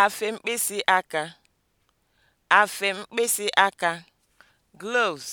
Afe mkpịsị aka, afe mkpịsị aka, gloves